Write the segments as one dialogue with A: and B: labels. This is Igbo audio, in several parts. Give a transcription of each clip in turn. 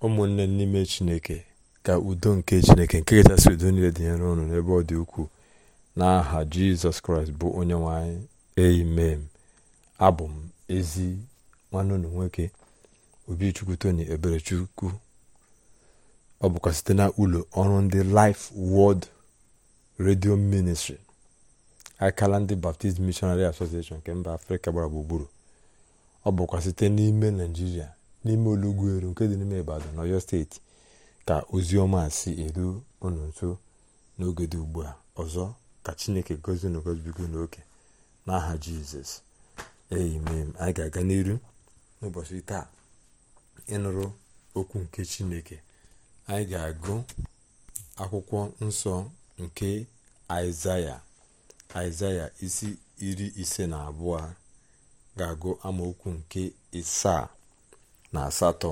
A: ụmụnne n'ime chineke ka udo nke chineke nke kachasị udo niile dị nyere unu n'ebe ọ dị ukwuu n'aha jizọs kraịst bụ onye nwanyị anyị amen abụ m ezi nwanne nwoke obichukwu tony eberechukwu ọ bụkwa site na ụlọ ọrụ ndị life word redio ministri akala ndị baptist missionary association nke mba afrịka gbara gburugburu ọ bụkwa site n'ime naijiria n'ime olugweru nke dị n'ime ibadan n'ọyọ steeti ka ozi ọma si eru unu nso n'oge dị ugbu a ọzọ ka chineke gozie na gozibigo n'oke n'aha jizọs amen anyị ga-aga n'iru n'ụbọchị taa ịnụrụ okwu nke chineke anyị ga-agụ akwụkwọ nsọ nke aịzaya aịzaya isi iri ise na abụọ ga-agụ amaokwu nke ịsaa na asatọ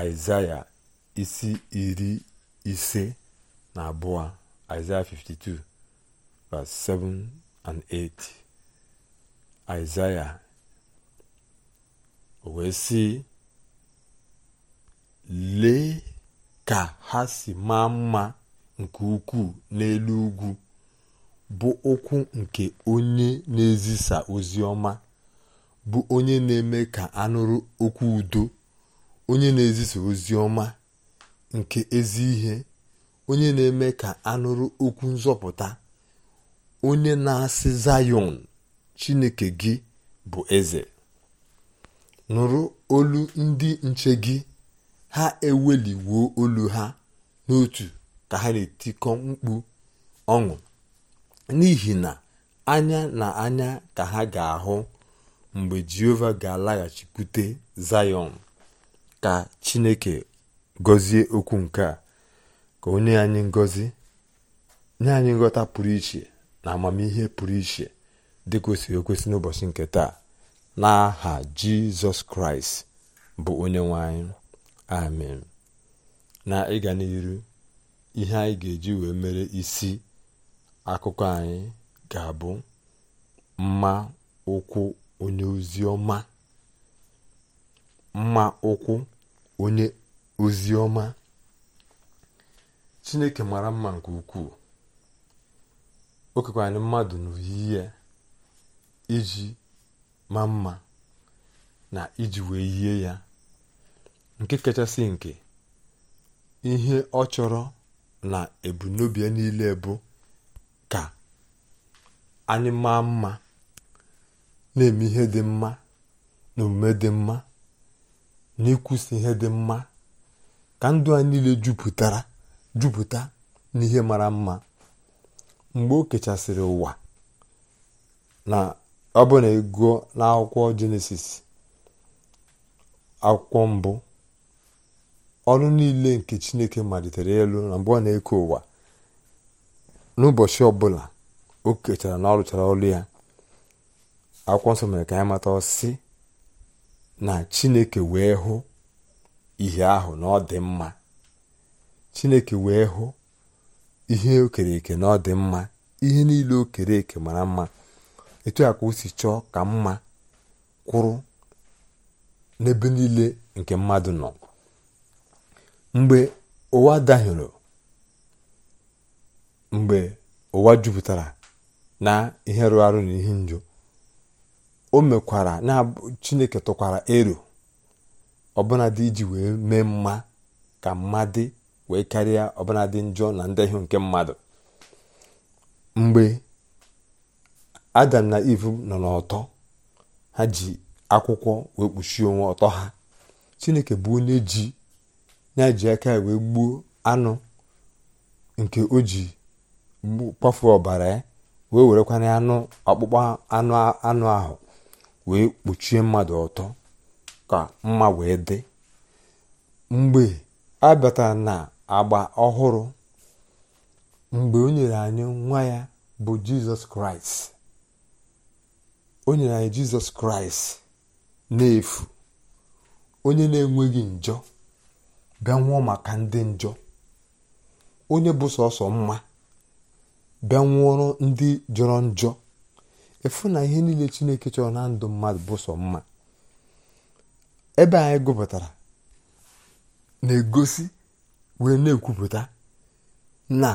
A: aịzaya isi iri ise na abụọ aịzaya 52 7 and 8 aịzaya o wee sị lee ka ha si maa mma nke ukwuu n'elu ugwu bụ ụkwụ nke onye na-ezisa ozi ọma bụ onye na-eme ka anụrụ okwu udo onye na-ezisa ozi ọma nke ezi ihe onye na-eme ka anụrụ okwu nzọpụta onye na-asị zayọn chineke gị bụ eze nụrụ olu ndị nche gị ha eweli wuo olu ha n'otu ka ha na-etikọ mkpu ọṅụ n'ihi na anya na anya ka ha ga-ahụ mgbe jehova ga-alaghachikwute zayọn ka chineke gọzie okwu nke a ka onye anyị ngọzi nye anyị nghọta pụrụ iche na amamihe pụrụ iche dị kwesịrị ekwesị n'ụbọchị nke taa n'aha jizọs kraịst bụ onye nwe anyị amen na ịga n'iru ihe anyị ga-eji wee mere isi akụkọ anyị ga-abụ mma ụkwụ onye ozi ọma mma ụkwụ onye ozi chineke mara mma nke ukwuu o anyị mmadụ n'oyiyi iji maa mma na iji wee yie ya nke kachasị nke ihe ọ chọrọ na ebunobi ya niile bụ ka anyị maa mma na-eme ihe dị mma na omume dị mma na ịkwụsị ihe dị mma ka ndụ a niile jupụtara jupụta ihe mara mma mgbe o kechasịrị ụwa na ọ bụ na ịgụọ n'akwụkwọ jenesis akwụkwọ mbụ ọrụ niile nke chineke malitere elu na mgbe ọ na-eke ụwa n'ụbọchị ọbụla o kechara na ọ rụchara ọrụ ya akwụkwọ nsọ mere ka anyị mata ọsị na chineke wee hụ ihe ahụ na mma chineke wee hụ ihe okere eke na ọ mma ihe niile okere eke mara mma etu a ka o si chọọ ka mma kwụrụ n'ebe niile nke mmadụ nọ mgbe ụwa dahiere mgbe ụwa jupụtara na ihe rụrụ arụ na ihe njọ o mekwara na chineke tụkwara ero ọbụnadị iji wee mee mma ka mmadụ wee karịa ọbụnadị njọ na ndehie nke mmadụ mgbe adam na iv nọ n'ọtọ ha ji akwụkwọ wee kpuchie onwe ọtọ ha chineke bụ onye ji na-eji aka wee gbuo anụ nke o ji kpafuo ọbara ya wee werekwana anụ ọkpụkpọ anụ ahụ wee kpuchie mmadụ ọtọ ka mma wee dị mgbe a batara na agba ọhụrụ mgbe o nyere anyị nwa ya bụ jizọs kraịst nyere anyị jizọs kraịst n'efu onye na-enweghị njọ bịa nwụọ maka ndị njọ onye bụ sọsọ mma bịa nwụọrọ ndị jọrọ njọ efu na ihe niile chineke chọrọ na ndụ mmadụ bụ sọ mma ebe anyị gụpụtara na-egosi wee na-ekwupụta na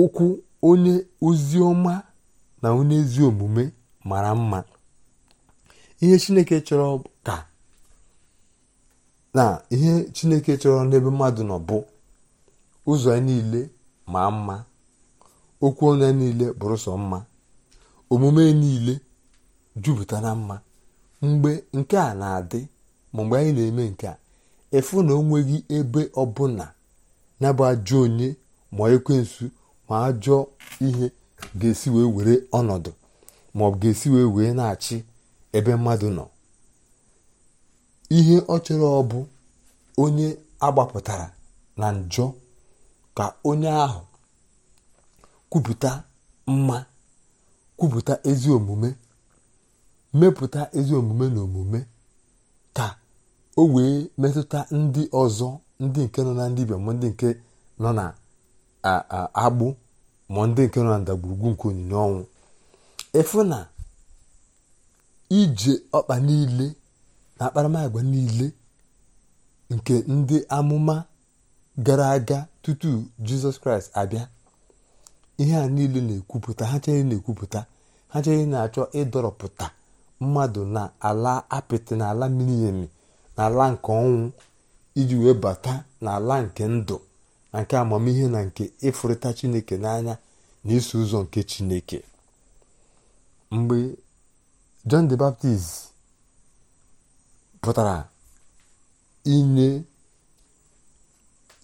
A: ụkwụ onye ozi na onye ezi omume mara mma ihe chineke chọrọ ka na ihe chineke chọrọ n'ebe mmadụ nọ bụ ụzọ ya niile ma mma okwu onye ya niile bụrụ sọ mma omume niile jupụta na mma mgbe nke a na-adị ma mgbe anyị na-eme nke a efu na onweghị ebe ọbụla ya bụ onye ma ekwensu ma ajọ ihe ga-esi wee were ọnọdụ ma ọ ga-esi wee wee na-achị ebe mmadụ nọ ihe ọ chọrọ ọ bụ onye agbapụtara na njọ ka onye ahụ kwupụta mma kwupụta ezi omume mepụta ezi omume na omume ka o wee metụta ndị ọzọ ndị nke nọ na ndị ibe ma ndị nke nọ na agbụ ma ndị nke nọ na ndagwurugwu nke onyinye ọnwụ ịfụ na ije ọkpa niile na akparamagwa niile nke ndị amụma gara aga tutu jizọs kraịst abịa ihe a niile na-ekwupụta ha chere na-ekwupụta ha chere na-achọ ịdọrọpụta mmadụ na ala apịtị na ala mmiri na ala nke ọnwụ iji wee bata na ala nke ndụ na nke amamihe na nke ịfụrịta chineke n'anya na iso ụzọ nke chineke mgbe John the Baptist pụtara inye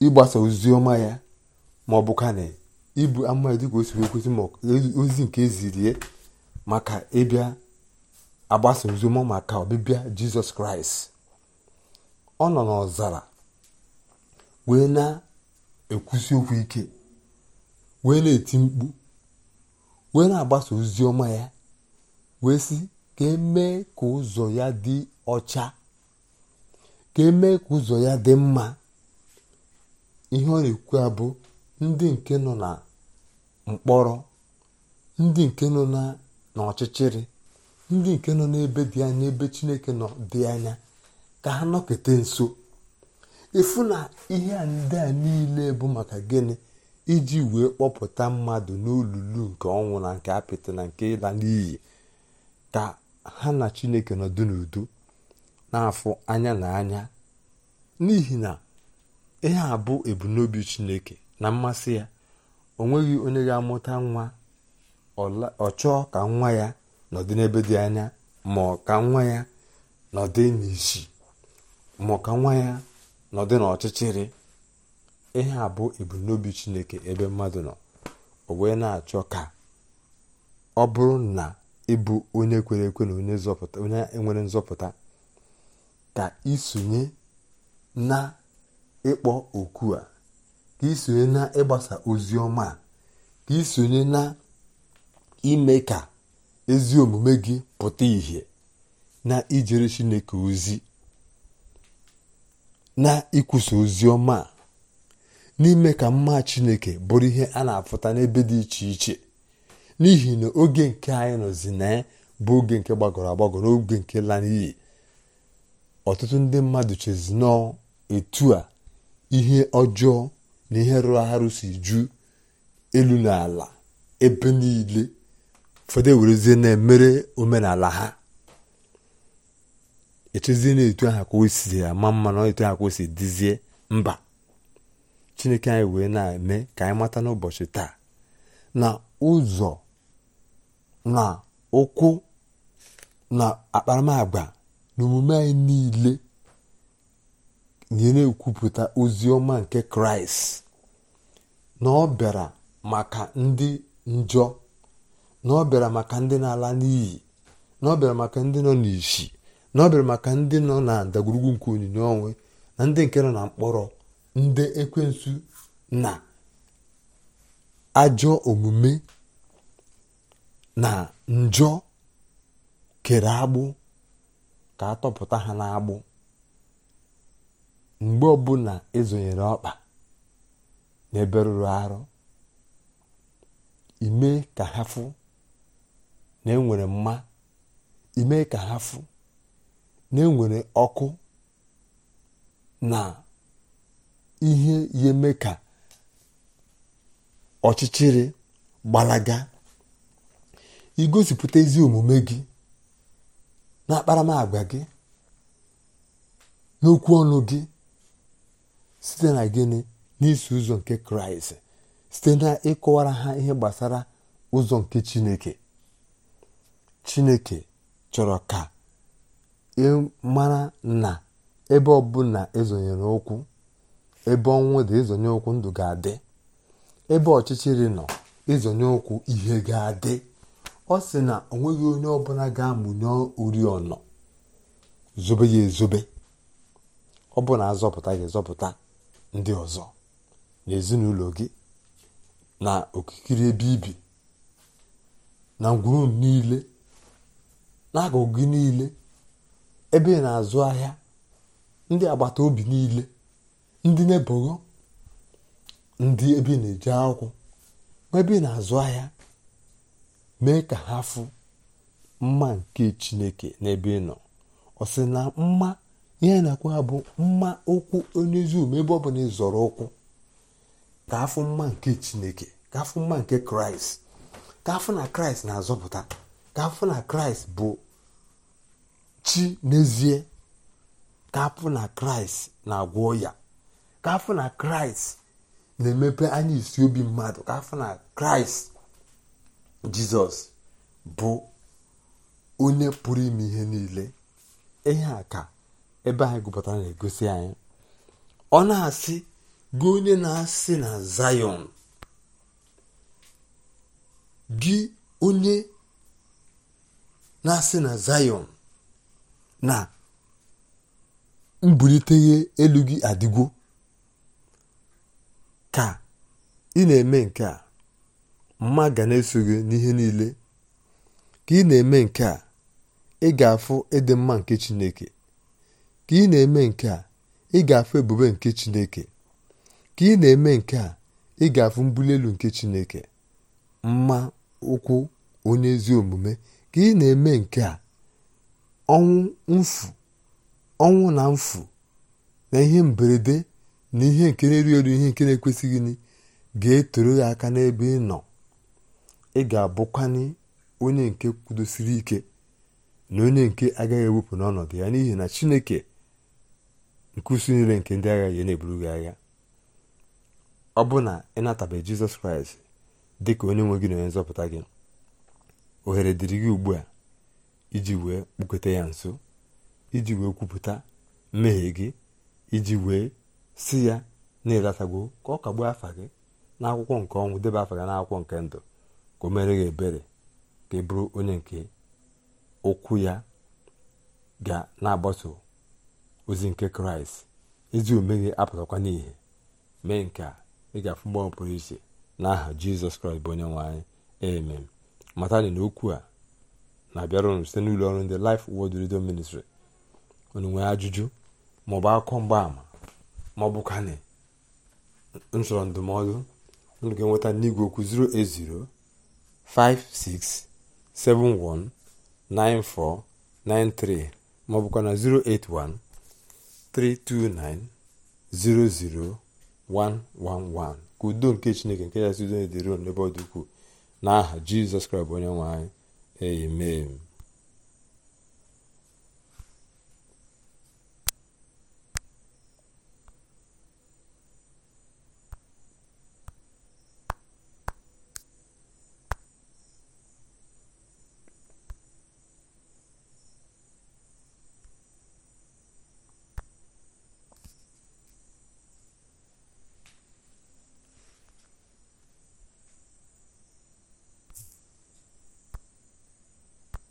A: ịgbasa ozi ọma ya ma ọ bụ ka ibu amụma dịka o siri ekwesị ma e- ozi nke ezirie maka ịbịa agbasa ozoma maka ọbịbịa jizọs kraịst ọ nọ n'ọzara wee na-ekwusi okwu ike wee na-eti mkpu wee na-agbasa ozi ọma ya wee sị ka emee ka ụzọ ya dị ọcha ka emee ka ụzọ ya dị mma ihe ọ na-ekwu abụ ndị nke nọ na mkpọrọ ndị nke nọ n'ọchịchịrị ndị nke nọ n'ebe dị anya ebe chineke nọ dị anya ka ha nọkete nso ifu na ihe ndị a niile bụ maka gịnị iji wee kpọpụta mmadụ n'olulu nke ọnwụ na nke apịtị na nke ịla n'iyi ka ha na chineke nọdụ n'udo na-afụ anya na anya n'ihi na ihe a bụ ebumnobi chineke na mmasị ya o nweghị onye ga-amụta nwa ọ chọọ ka nwa ya nọdị n'ebe dị anya ma ka nwa ya nọdị n'isi ma ka nwa ya nọdị n'ọchịchịrị ihe a bụ ebumnobi chineke ebe mmadụ nọ o wee na-achọ ka ọ bụrụ na ịbụ onye kwere ekwe na onye nwere nzọpụta ka isonye na ịkpọ oku a ka isonye na ịgbasa ozi ọma ka isonye na ime ka ezi omume gị pụta ìhè na ijere chineke ozi na ikwusa ozi ọma n'ime ka mma chineke bụrụ ihe a na-afụta n'ebe dị iche iche n'ihi na oge nke anyị nọzi na bụ oge nke gbagọrọ agbagọ n'oge nke la n'iyi ọtụtụ ndị mmadụ chezi etu a ihe ọjọọ na ihe rụrụ arụ si ju elu na ebe niile fọdụ ewerezie na-emere omenala ha echezie na etu aha ka o si ama mma na etu aha ka o si dizie mba chineke anyị wee na-eme ka anyị mata n'ụbọchị taa na ụzọ na ụkwụ na akparamagwa na omume anyị niile na-ekwupụta ozi ọma nke kraịst na ọ bịara maka ndị njọ na ọ bịara maka ndị na-ala n'iyi na ọ bịara maka ndị nọ n'isi na ọ bịara maka ndị nọ na ndagwurugwu nke onyinye onwe na ndị nke nọ na mkpọrọ ndị ekwensu na ajọ omume na njọ kere agbụ ka atọpụta tọpụta ha n'agbụ mgbe ọbụla ezonyere ọkpa n'ebe rụrụ arụ ime ka ha fụ na enwere mma ime ka ha na enwere ọkụ na ihe ya eme ka ọchịchịrị gbalaga igosipụta ezi omume gị na akparamagwa gị n'okwu ọnụ gị site na gịnị n'isi ụzọ nke kraịst site na ịkọwara ha ihe gbasara ụzọ nke chineke chineke chọrọ ka ị mara na ebe ọbụla ezonyere ụkwụ ebe ọnwụ dị ezonye ụkwụ ndụ ga-adị ebe ọchịchịrị nọ ezonye ụkwụ ihe ga-adị ọ sị na ọ nweghị onye ọbụla ga-amụnye oriọna zobe ya ezobe ọ bụ na azọpụta gị zọpụta ndị ọzọ na gị na okikere ebe ibi na ngwuru niile n'akụkụ gị niile ebe ị na-azụ ahịa ndị agbata obi niile ndị na-ebogo ndị ebe na-eji akwụkwọ ma ebe ị na-azụ ahịa mee ka ha fụ mma nke chineke n'ebe ị nọ ọ sị na mma ihe na akwụ ha bụ mma okwu onye ezi ebe ọ bụla na ịzọrọ ụkwụ ka afụ mma nke chineke ka afụ mma nke kraịst ka afụ na kraịst na-azọpụta ka afụ na kraịst bụ chi n'ezie ka afụ na kraịst na-agwọ ya ka afụ na kraịst na-emepe anya isi obi mmadụ ka afụ na kraịst jizọs bụ onye pụrụ ime ihe niile ihe a ka ebe anyị gụpụtara na-egosi anyị ọ na-asị gị onye na-asị na zayon gị onye na-asị na zayon na mbuliteghe elu gị adịgwo ka ị na-eme nke a mma ga na-eso gị n'ihe niile ka ị na-eme nke a ị ga-afụ ịdị mma nke chineke ka ị na-eme nke a ị ga-afụ ebube nke Chineke ka ị na-eme nke a ị ga-afụ mbuli elu nke Chineke mma ụkwụ onye ezi omume ka ị na-eme nke a ọnwụ mfu ọnwụ na mfu na ihe mberede na ihe nke na-eri elu ihe nke na-ekwesịghị gị ga-etoro ya aka n'ebe ị nọ ị ga-abụkwanye onye nke kwudosiri ike na onye nke agaghị ewepụ n'ọnọdụ ya n'ihi na Chineke nke usu niile nke ndị agha ya na-eburu gị agha ọ bụ na ị natabeghị jizọs kraịst dị ka onye nwe gị na onye nzọpụta gị ohere dịrị gị ugbu a iji wee kpukweta ya nso iji wee kwupụta mmehie gị iji wee si ya na-elatago ka ọ kagbuo afa gị n'akwụkwọ nke ọnwụ debe afa gị n'akwụkwọ nke ndụ ka o mere gị ebere ka ị bụrụ onye nke ụkwụ ya ga na-agbaso ozi nke kraịst ezi omume gị apụtakwa n'ihe mee nke a ị ga-afụ mgbanwe pụrụ n'aha jizọs kraịst bụ onye nwanyị anyị amen matani na okwu a na-abịara site n'ụlọ ọrụ ndị Laịf Word Radio Ministri, unu nwee ajụjụ maọbụ akụkọ mgbaama maọbụ ka na nchọrọ ndụmọdụ unu ga-enweta n'igwe okwu 08056719493 maọbụkwa na 081 329-00111 ka udo nke chineke nke ya sido dịron n'ebe ọ dị ukwuu n'aha jizọs kraịst bụ onye nwe anyị amen